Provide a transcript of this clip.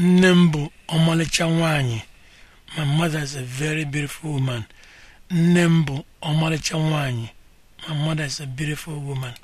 nne m bụ ọmalịcha nwanyị my mother is a very beautiful woman nne m bụ ọmalịcha nwanyị my mother is a beautiful woman